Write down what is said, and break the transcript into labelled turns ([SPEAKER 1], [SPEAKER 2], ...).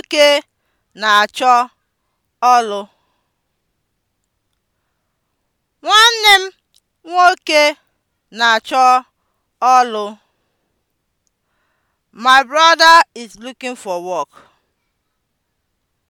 [SPEAKER 1] Nwoke na-achọ ọlụ. Nwanne m nwoke na-achọ ọlụ. My brother is looking for work.